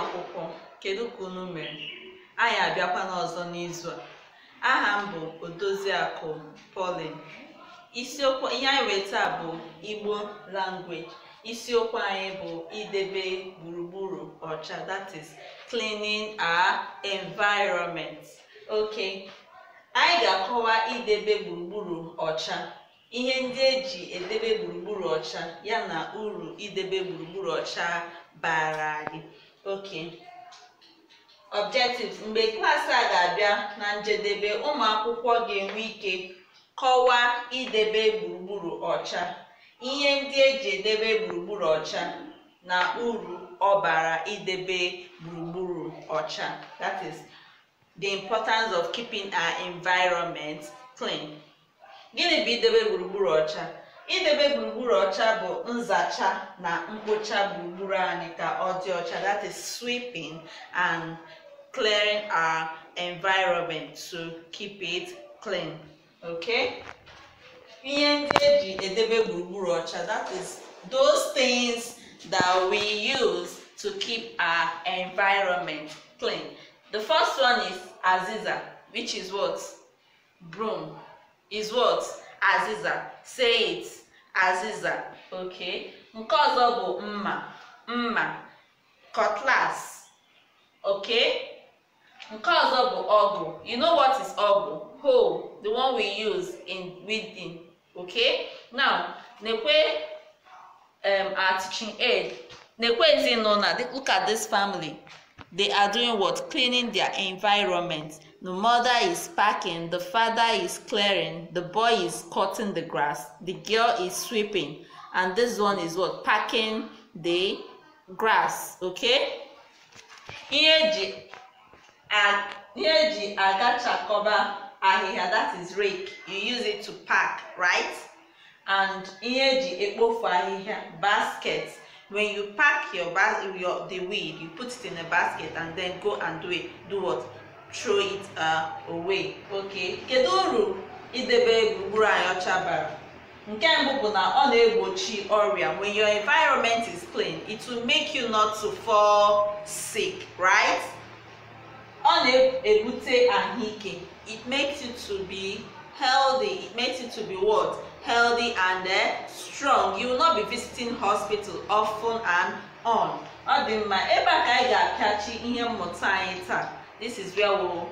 akwụkwọ kedu ka unu mere anyị abịakwa n'ọzọ n'izu a aha m bụ odoziakụ polin isiokwu ihe anyị wee bụ Igbo language isiokwu anyị bụ idebe gburugburu ọcha that is cleaning our environment ok anyị ga-akọwa idebe gburugburu ọcha ihe ndị eji edebe gburugburu ọcha yana uru idebe gburugburu ọcha bara anyị ok objectives mgbe klaasị a ga-abịa na njedebe ụmụ akwụkwọ ga-enwe ike kọwaa idebe gburugburu ọcha ihe ndị eji edebe gburugburu ọcha na uru ọbara idebe gburugburu ọcha that is the importance of keeping our environment clean gịnị bụ idebe gburugburu ọcha idebe gburugburu ọcha bụ nzacha na mkpocha gburugburu anyị ka ọ dị ọcha that is sweeping and clearing our environment to keep it clean okay ihe ndị eji edebe gburugburu ọcha that is those things that we use to keep our environment clean the first one is aziza which is what broom is what aziza say it aziza okay nke ọzọ bụ mma mma cutlass okay nke ọzọ bụ ọgụ you know what is ọgụ hoe the one we use in weeding okay now nekwe um, our teaching aid nekwe ezinụlọ look at this family They are doing what? Cleaning their environment. The mother is packing, the father is clearing, the boy is cutting the grass, the girl is sweeping, and this one is what? Packing the grass. Okay? Here, that is rake you use it to pack right and basket when you pack your bas your the weed you put it in a basket and then go and do it do what throw it uh, away okay kedu uru idebe gburugburu anyị ọcha bara nke mbụ bụ na ọ na-egbochi ọrịa when your environment is clean it will make you not to fall sick right ọ na-ebute ahụike it makes you to be healthy it makes you to be what healthy and uh, strong you will not be visiting hospital often and on ọ dị mma ebe a ka anyị ga-apịachi ihe mmụta anyị taa this is where we we'll,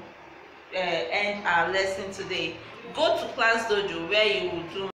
uh, eh, end our lesson today go to class dojo where you will do